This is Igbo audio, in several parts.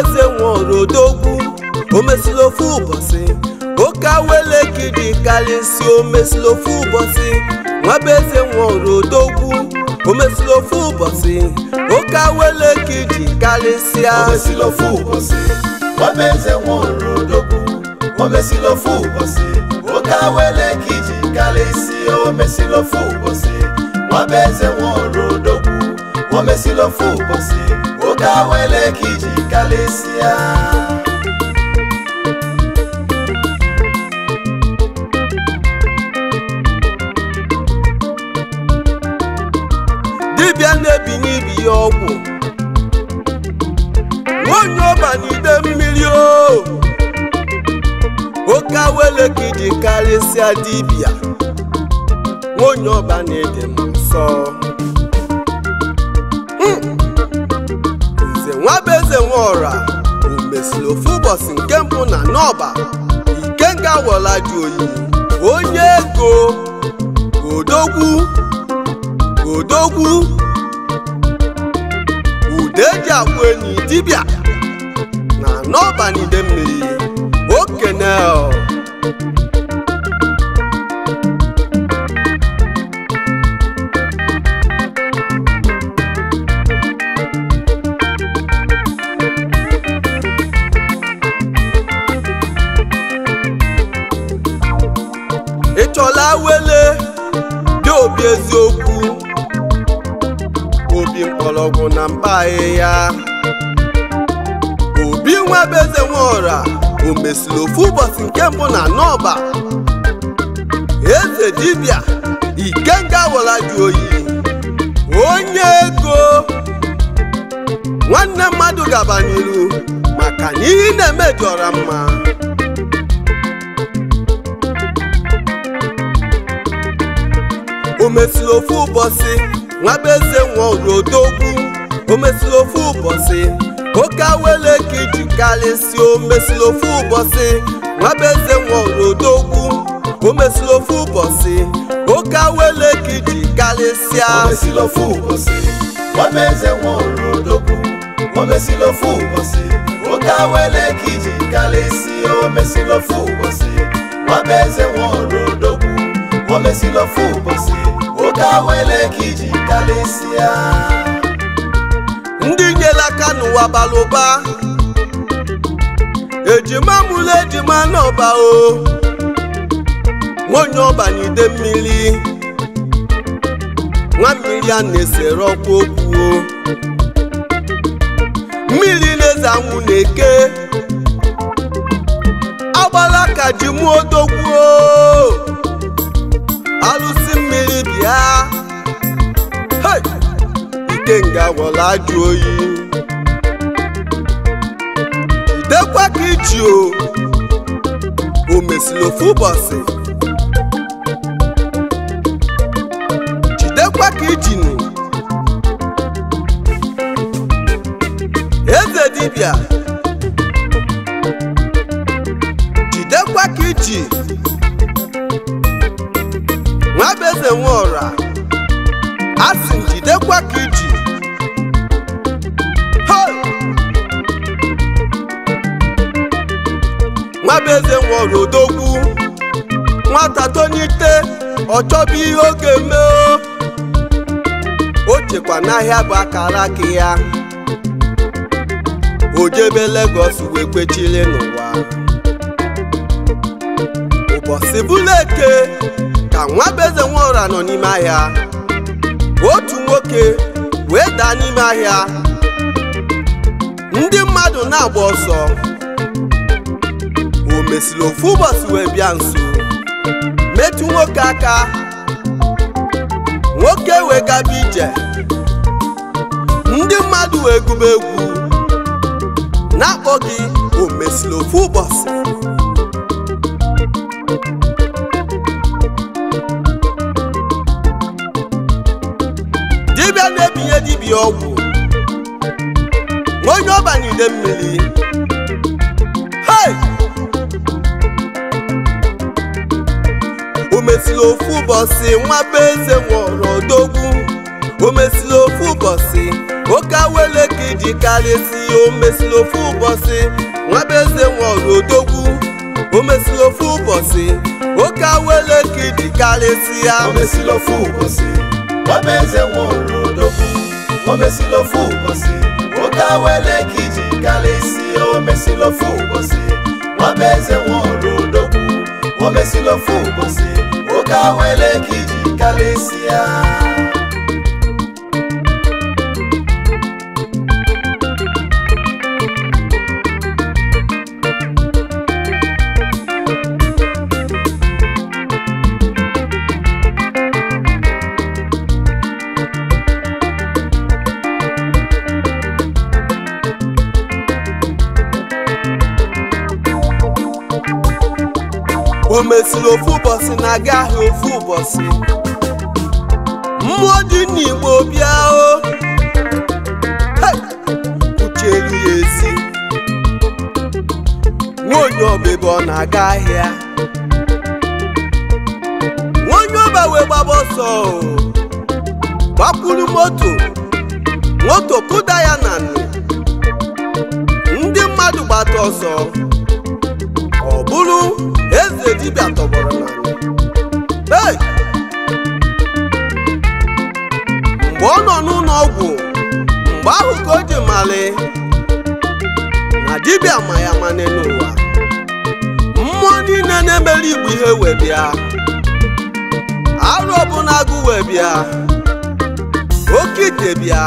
eze nworodogu omesili ofu ụbọchị oke awelekidi karịsị omesili ofu ụbọchị nwabeeze nworodogu omesili ofu ụbọchị oke awelekidi karịsịa omesili ofu ụbọchị nwabeeze nworodogu omesili ofu ụbọchị oke awelekidi karịsịa omesili ofu ụbọchị nwabeeze nworodogu omesili ofu ụbọchị ụka wele ka iji kalesịa dibịa na-ebinye ya ọgwụ nwonye ọba n'ide mmiri o oke awele ka iji karịsịa dibịa nwonye ọba na-ede m nsọ ọra bụ mesịrị ofu ụbọchị nke mbụ na n'ọba ikenga weladi oyi onye ego odogwu odogwu ude ji agwụ enyi dibịa na n'ọba n'ide mmiri okene obi eziokwu obi mkpọrọgwụ na mba ahịhịa obi nwebe eze nweọra o mesịrị ofu ụbọchị nke mbụ na n'ọba eze dibịa ikenga wara jụ oyi onye ego nwanne mmadụ gabanyelu maka na ihe na-emejọra mma omesiri ofu ụbọchị nwa be eze nwa odogwu omesiri ofu ụbọchị oke awele ka iji karịsịa omesiri ofu ụbọchị nwa be eze nwa odogwu omesiri ofu ụbọchị oke awele ka iji karịsịa omesiri ofu ụbọchị nwa be eze nwa odogwu omesiri ofu ụbọchị oke awele ka iji karịsịa omesiri ofu ụbọchị nwa ofu ụbọchị ka wele ka iji ndị nyere aka n'ụwa bara ụba ejima mụrụ ejima n'ọba o nwanyị ọba n'ide mmiri nwa mmiri a na-esere ọkwa okwu mmiri na-eze anwụ na-eke agbala ka ji mụọ odogwuo Ikenga Wọlájú Oyì idekwa ka iji o o mesịrị ofu ụbọchị jidekwa ka ijinu eze dibịa jidekwa ka iji nwa bụ eze nwa nwa beze eze odogwu nwata tonite ọchọbụ ihe oge mee o chekwa n'ahịa bụ akara aka ya o jebe Lagos wee kwechiri n'ụwa ụbọchị bụla ka nwa beze nọ n'ime ahịa otu nwoke wee daa n'ime ahịa ndị mmadụ na-agba ọsọ mesịrị ofu ụbọchị wee bịa nso metụ nwoke aka nwoke wee gaba ije ndị mmadụ wee gụba egwu na-akpọ gị o mesịrị ofu ụbọchị dibịa na-ebinye dibịa ọgwụ onye ọba ude mmiri mesịla ofu ụbọchị nwaba eze nwụrụ odogwu o mesịla ofu ụbọchị oke awele ka iji karịsị o mesịla ofu ụbọchị nwaba eze nwụrụ odogwu o mesịla ofu ụbọchị oke awele ka iji karịsị ya o mesịla ofu ụbọchị nwaba eze nwụrụ odogwu o mesịla ofu ụbọchị oke awele ka iji karịsị o mesịla ofu ụbọchị nwaba eze nwụrụ odogwu o mesịla ofu ụbọchị Kaweleki, Kalesia. o mesiri ofu ụbọchị na-aga ahịa ofu ụbọchị mmụọ dị n'igbo bịa o kuchelu ya ezi nwonye ọba ọ na-aga ahịa nwonye ọba wee gbaba ọsọ gbakwuru moto moto kụda ya na ndị mmadụ gbata ọsọ ọ bụrụ eze dibịa tọgbọrọ n'ala mgbe ọ nọ n'ụlọ ọgwụ mgbe ahụ ka o ji mali na dibịa ma ya mane n'ụwa mmụọ niile na-emere igbu ihe wee bịa arụ ọbụla agụ wee bịa oke ite bịa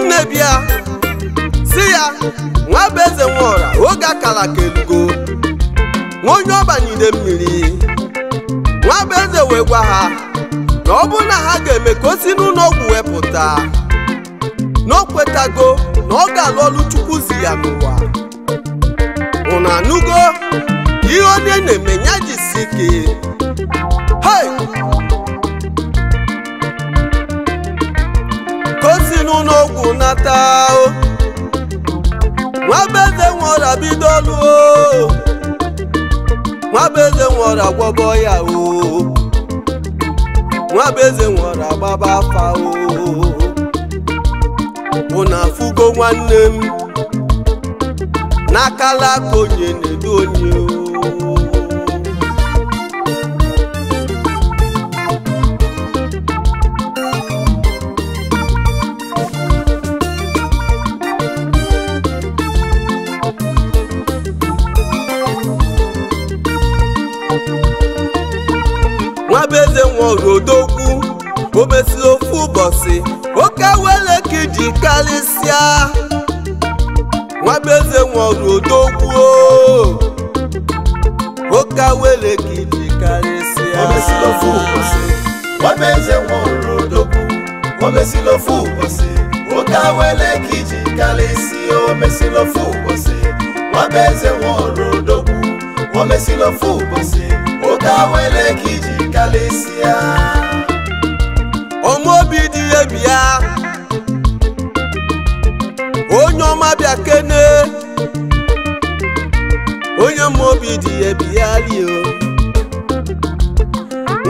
nne bịa si ya nwa bụ eze oge akara ka elugo onye ọbanyide mmiri nwa bụ eze wee gwa ha na ọ na ha ga-eme ka o si n'ụlọ wepụta na o kwetago na ọ ga-alụ ọlụ chukwu zi ya n'ụwa unu anugo ihe onye na-eme nye jisi ike hei ka si nata nwa bụ eze nwụọra bido nwabeze nwere agwọbọ ya oo nwabeze nwere agbaba afa oo na afụgo nwanne m n'akala aka onye na-edu onye oo odogwu o mesịrị ofu ụbọchị oke wele ka iji karịsịa nwabeeze nwere odogwu oke wele ka iji o mesịrị ofu ụbọchị nwabeeze nwere o mesịrị ofu ụbọchị oke wele ka iji karịsịa o mesịrị ofu ụbọchị nwabeeze nwere odogwu o mesịrị ofu ụbọchị oke kalịsịa omeobi dị ya onye ọma bịa kene onye ọmaobi dị ya bịa lio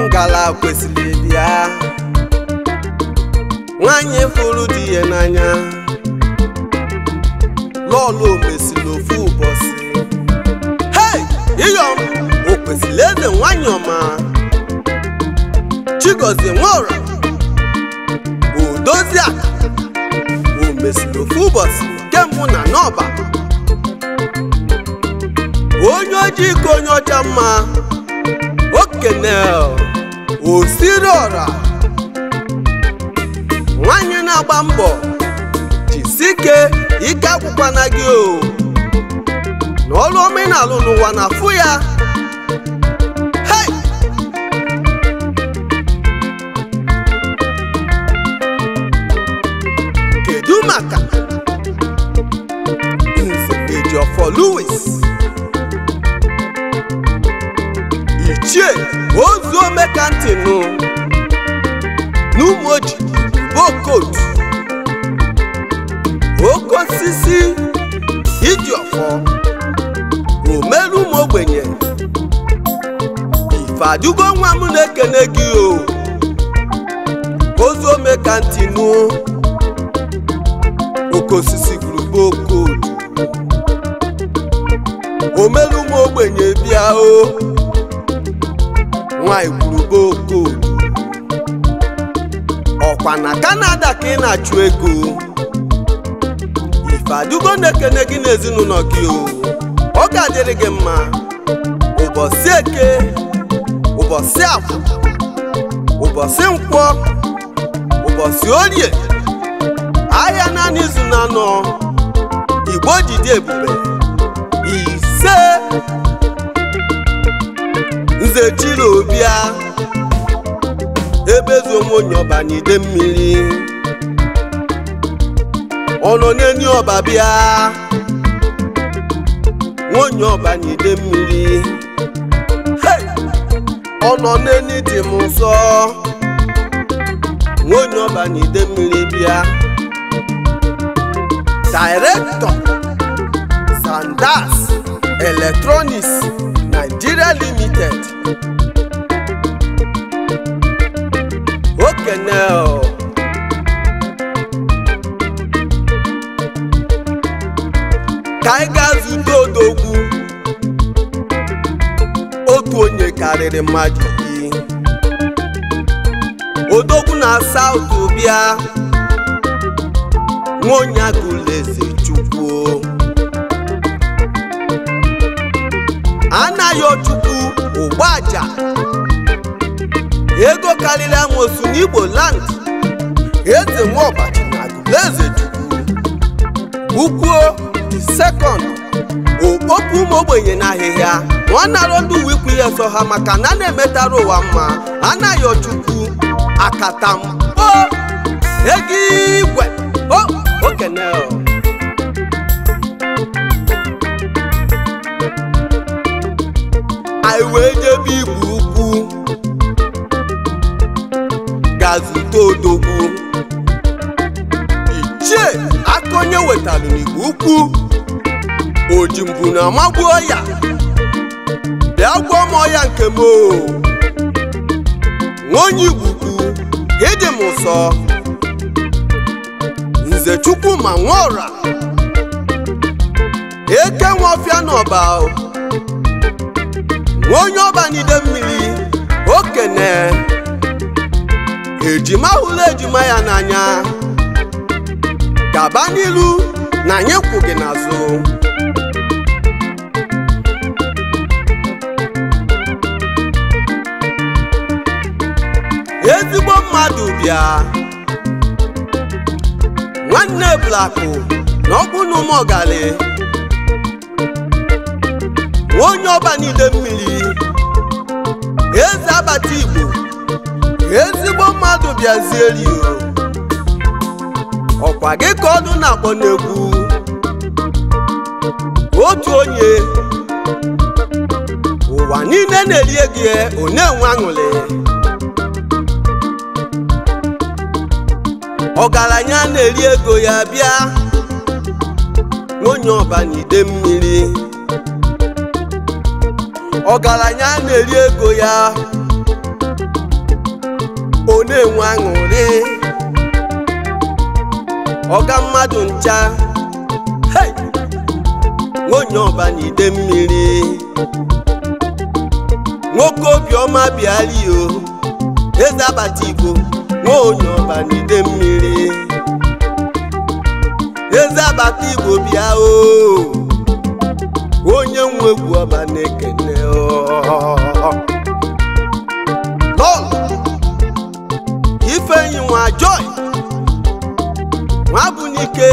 ngala kwesịrị bịa nwanyị fụrụ dị ya n'anya lọlụ omesiri n'ofu ụbọchị hei iyom o kwesịrị ede nwanyị ọma Chigozie Nwora Odoziaka o mesiri na n'ọba onye ojii ka onye ọcha mma okene osiri Nwanyi na-agba mbọ jisike ike agwụkwana gị o n'ọrụ omenala n'ụwa na afụ ya for Louis. Ichie Ozuomeka Ntinu N'Umoji Bokot Oke osisi Ijiọfọ Omelu m ogbenye Ifadugo nwa m na-ekene gị o Ozuomeka Ntinu Oke sisi Group Bokot omelu ụmụ ogbenye bịa o nwanyị kwuru boko ọkwa na kanada ka ị na-achụ ego ife adugo na-ekene gị n'ezinụlọ gị o ọ ga-adịrị gị mma ụbọchị eke ụbọchị afọ ụbọchị nkwọ ụbọchị orie ahịa naanị izu na anọ igbo jide ebube nze chilobia ebezu onwe onye ọba n'ide mmiri ọnọ n'eni ọba bịa nwonye ọba n'ide mmiri ọnọ n'eni dị m nsọ nwonye ọba n'ide mmiri bịa dairektọ sandas eletrọniks Nigeria Limited okenye ka anyị ga ndị odogwu otu onye karịrị mmadụ iri odogwu na South obia nwaonye agụleze anaghị ochukwu ụgbaja ego karịrị amosu n'igbo land eze ọbachi na agụleze chukwu di sekọnd okpokpu ụmụ ogbenye na ahịhịa nwanarọ ndị uwe ikwu ihe so ha maka na na-emetara ụwa mma anaghị ochukwu akatampo ego igwe okeneo anyị wee ebe igbo ukwu gazute odogwu ichie aka onye wetalụ n'igbo ukwu oji na amagbuo ya bịa gwọ m ọya nke m nwaonye igbo ukwu ịdị m ụsọ nze Chukwuma Nwaora eke nwa ọfịa n'ọba onye ọbanide mmiri okene ejima hụrụ ejima ya n'anya gaba n'ilu na anyị gị n'azụ ezigbo mmadụ bịa nwanne blakụ na na ụmụ ọgali onye ọba niile mmiri eze abata igbo ezigbo mmadụ bịazieri ọkwa gị ka ọdụ na-akpọ n'egwu otu onye ụwa niile na eri gị onye na aṅụrị ọgaranya na-eri ego ya bịa onye ọba n'ide mmiri ọgaranya na-eri ego ya ọ na-enwe aṅụrị ọga mmadụ ncha nwonye ọba na ide mmiri nwoke obiọma bịalio eze abata igbo nwonye ọba na ide mmiri eze abata igbo bịa o onye nwe egwu ọba na-ekene lọl ifeanyi nwa joy nwabunike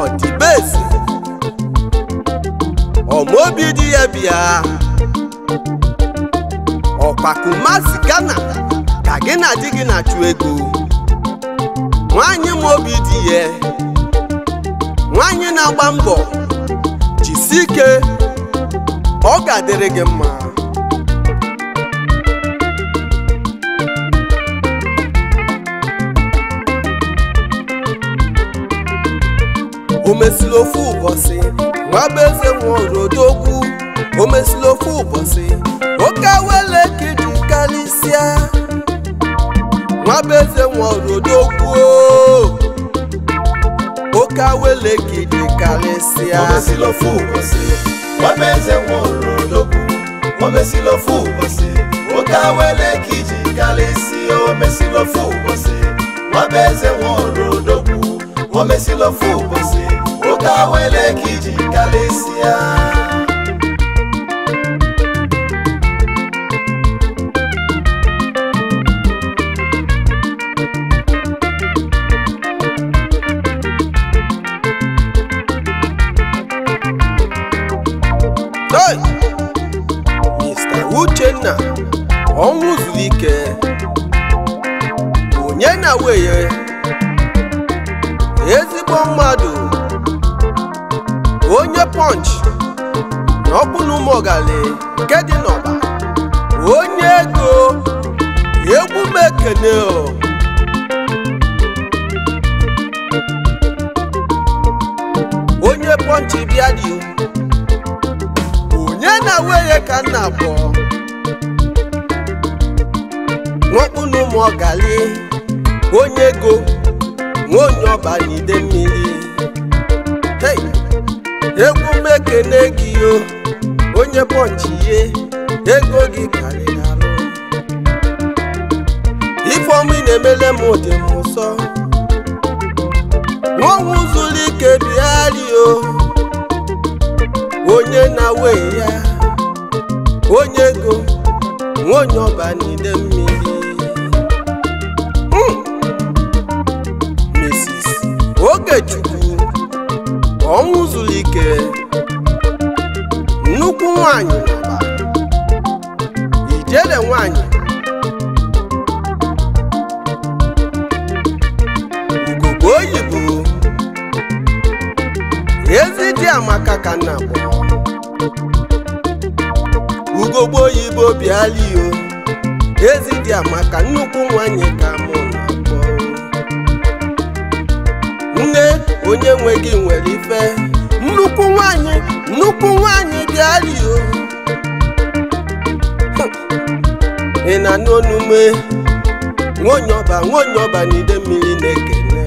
ọdịbesi ọmaobi dị ya bịa ọkpakumasi gana ka gị na di gị na-achụ ego nwanyị m obi dị ya nwanyị na-agba mbọ jisie ike ọ ga-adịrị gị mma o mesịrị ofu ụbọchị nwa bụ eze nwere odogwu o mesịrị ofu ụbọchị oke wele ka karịsịa nwa eze nwere odogwu sia, ka welekidi karịsịa omesilofụ ụbọchị omeze nwụrụ n'okwu omesilofụ ụbọchị ụka welekiji karịsịa omesilofụ ụbọchị omeze nwụrụ n'okwu omesilofụ ụbọchị ụka welekiji sia. na weye ezigbo mmadụ onye Punch na ọkpụna ụmụogali nke dị n'ọba onye ego egwu m ekene onye pọnch bịa dị onye na weye ka nna abụọ nwakpụ na onye ego nwa onye ọba n'ide mmiri egwu meke ekene gị onye pọnchi ye ego gị karịrị alụ ifeọma ị na-emele m dị m ụsọ nwaọnwụ zuru ike bịarị onye na we ya onye ego nwa onye ọba n'ide mmiri Ikechukwu ọnwụ zuru ikere nnukwu nwanyị n'ọba ijele nwanyị ugogbe oyibo ezi dị amaka ka nna kpọrọ ugogbe oyibo bịala iyo ezi dị amaka nnukwu nwanyị ka mụ na nne onye nwe gị nwere ife nnukwu nwanyị nnukwu nwanyị bịario ị na-anụ onume nwonyọba nwonyọba n'ide mmiri na-ekene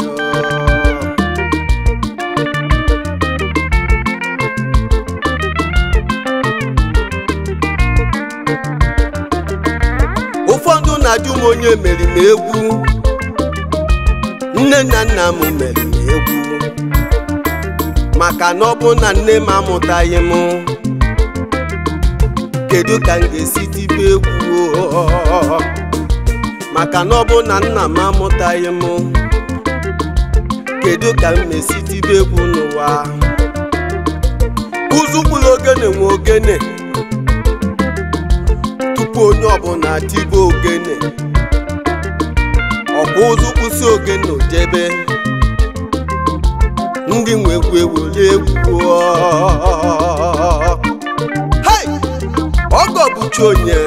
ụfọdụ na-ajụ m onye merime egwu nne na nna m mere egwu maka na ọ bụ na nne m amụtaghị m kedu ka m ga-esi tibe egwu maka na ọ bụ na nna m amụtaghị m kedu ka m na-esi tibe egwu n'ụwa uzukwula ogene nwe ogene tupu onye ọbụla tibe ogene ọ ụzụ kwụsị ogene jebe ndị nwekwu ewuli egwu ọgọ bụcha onye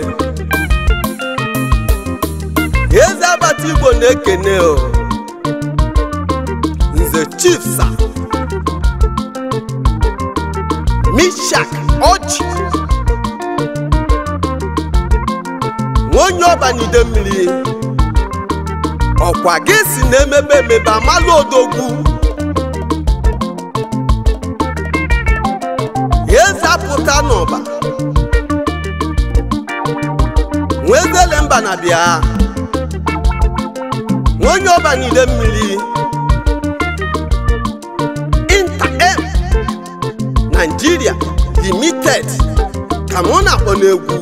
eze agbata igbo na-ekene nze chifsa mishak ọchị nwaonye ọbanide mmiri ọkwa gị si na-emebe emebe amalụ odogwu apụta n'ụba nwezele mba na bịa onye ọba niile mmiri inter-m e- limited ka mụ na-akpọ n'egwu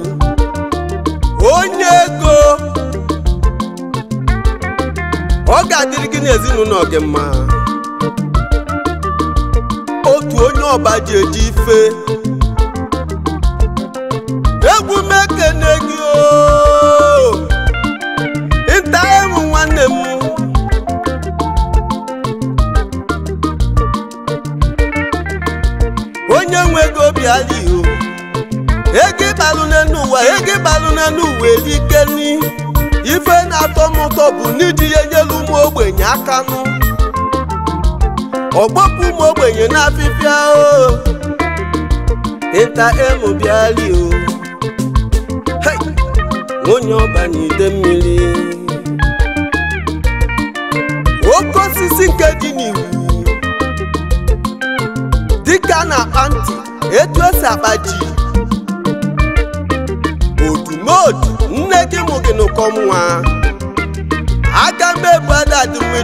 onye ego ọ ga-adịrị gị n'ezinụlọ gị mma otu onye ọba ji eji ife egwu m ekene gị oh! nta ewu nwanne m onye nwe ego obi adịghị oh! ego ịbalụ n'elu ụwa ego ịbalụ n'elu ike ife na-atọ m ụtọ bụ n'iji ya nyelu ụmụ ogbenye akanụ ọgbọpụ ụmụ ogbenye na n'afịfịa o oh! ịta emu bịali o onye ọba n'ide mmiri oke osisi nke dị n'iwu dịka na-akpa ntị etu esi akpa ji otu nne gị mụ gị n'ụkọ nwa aga m ebu ada mmiri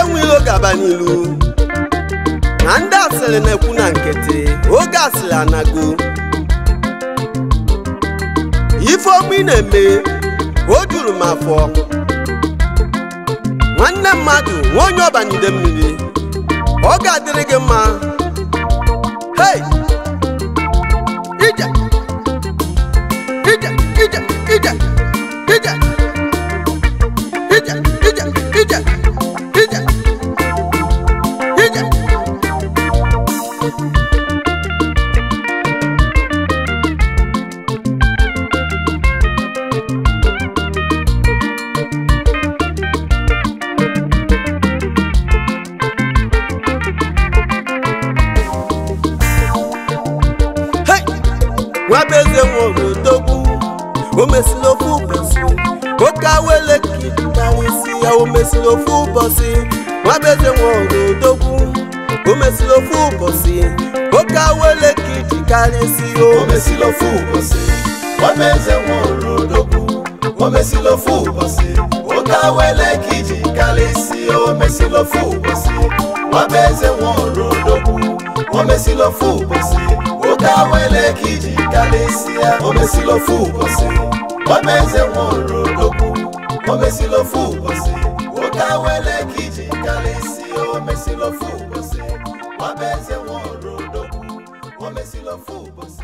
enweghị oge aba n'ilu asịrị na-ekwu na nkịtị oge asịrị anago ifeokwu ị na-eme o juru m afọ nwanne mmadụ nwa onye ọbanide mmiri ọ ga-adịrị gị mma hei ya o mesiri ofu ụbọchị nwabeje nwe odogwu o mesiri ofu ụbọchị oke awele ka iji karịsị o mesiri ofu ụbọchị nwabeje nwe odogwu o mesiri ofu ụbọchị oke awele ka iji karịsị o mesiri ofu ụbọchị nwabeje nwe odogwu o mesiri ofu ụbọchị oke awele ka iji karịsị o mesiri ofu ụbọchị nwabeje nwe odogwu o mesiri ofu ụbọchị I wele kiji kalisi o mesilo fubose Wabeze doku